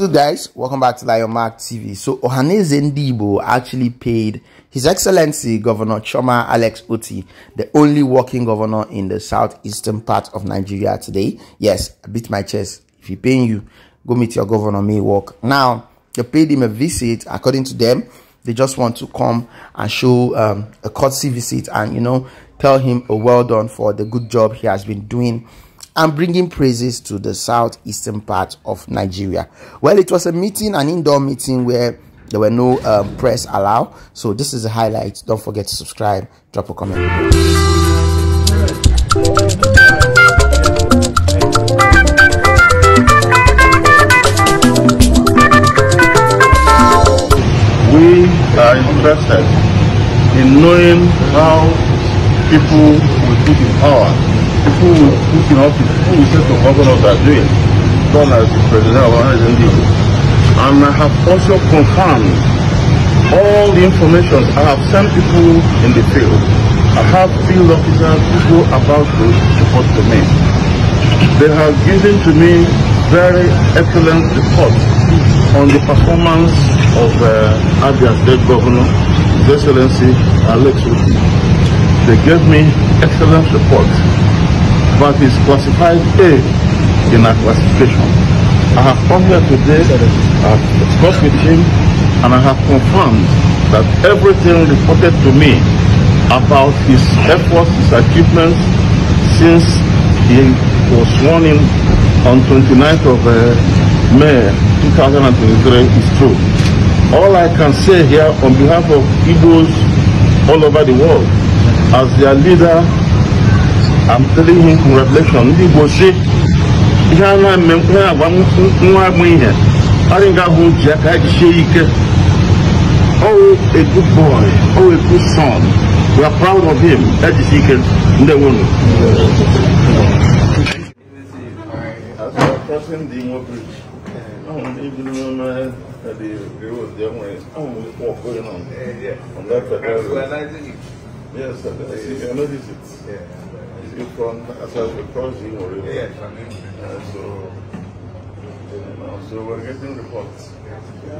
So guys, welcome back to Lion Mark TV. So Ohaneze Ndibo actually paid His Excellency Governor Choma Alex Uti, the only working governor in the southeastern part of Nigeria today. Yes, I beat my chest. If he paying you, go meet your governor, may work. Now, they paid him a visit. According to them, they just want to come and show um, a courtesy visit and, you know, tell him, a well done for the good job he has been doing and bringing praises to the southeastern part of Nigeria. Well, it was a meeting, an indoor meeting where there were no um, press allowed. So this is the highlight. Don't forget to subscribe, drop a comment. we are interested in knowing how people will be in power who, in office, who is set to govern us are doing, done as the president of our And I have also confirmed all the information. I have sent people in the field. I have field officers who go about to report to me. They have given to me very excellent reports on the performance of uh, Abia State Governor, His Excellency Alex Uti. They gave me excellent reports but it's classified A in our classification. I have come here today, I have discussed with him, and I have confirmed that everything reported to me about his efforts, his achievements, since he was sworn in on 29th of uh, May 2023 is true. All I can say here on behalf of Igbos all over the world, as their leader I'm telling him from revelation ndị Igbo si ihe a na-eme ihe agwa nwa agbụ ihe ọ dị nga bụ ji aka jisie ike a good boy Oh, a good son we are proud of him ejisi ike ndị nwunu ndị nwoke ahụ ndị bi n'ime that the girls they went, oh, what's going on? Yeah, yeah. On Yes, I, I, see, I Yeah. is it from as a crossing or river? Yes, I mean, uh, so, you uh, know, so we're getting reports.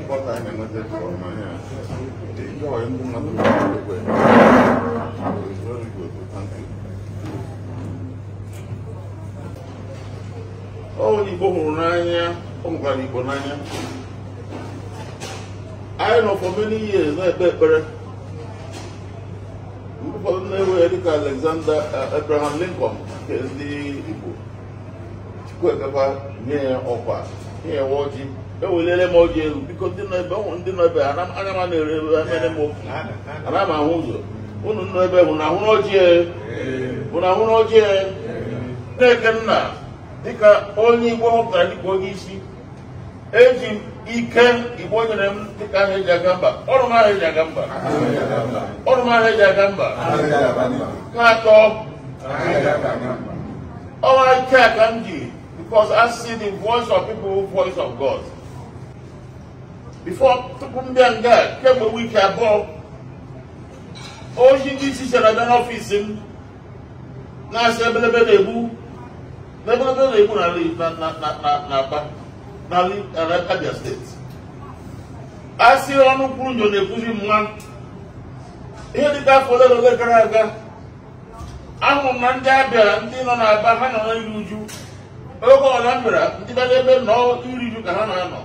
What I am not from here. Uh, The guy is not very good. It's very good. Thank you. Oh, Igbo hụrụ n'anya, ọ mụkwara Igbo n'anya. I know for many years na-ekpe ekpere. ụfọdụ na-ewere dịka Alexander uh, Abraham Lincoln nke ndị Igbo Chukwuemeka nye ya ọkwa nye ya ọjị eweliele m ọjị elu biko ndị nọ ebe anya m na-ere m ana m ahụ ụzọ unu nọ ebe bụ na ahụ n'ọjị bụ e. na ahụ n'ọjị Nnekenna e. dịka onye Igbo họpụtara dịka onye isi eji ike igbo nyere m dịka ahụ eji aga mba ọrụ m ahụ eji aga mba ọrụ m ahụ eji aga mba nke atọ ọnwa ike a ka m ji because I see the voice of people voice of God before tupu m bịa nga kemgbe wiki abụọ ozi ndị isi chere abịa n'ọfịs m na-asị ebelebe na-egbu na ebelebe na-egbu na aba n'ala Abia steeti a sị ọnụ kwuru nyo na-ekwuzi mma ihe dịka afọ ole na ole gara aga ahụrụ m na ndị Abia ndị nọ n'Aba ha nọ n'iri uju oge ọla mbịara ndị bịara ebe nọọ iri uju ka ha na-anọ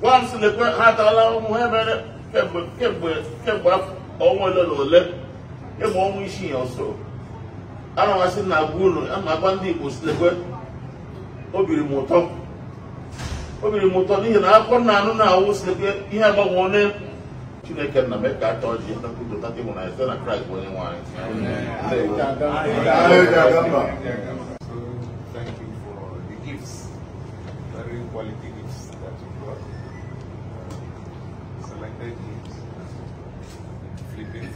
gwa m sị ha atala ụmụ ha emere kemgbe ọnwa ole na ole ịmụ ọnwa isii ọzọ. ana m asị na agwa unu ndị Igbo si m ụtọ obiri m ụtọ n'ihi na akọ na anụ na-awụ site ihe agbanwe chineke na m ka achọ ji nkwupụta gị nwụrụ site na kraịst onye nwanyị Very quality gifts that you brought. Uh, selected gifts. Flipping.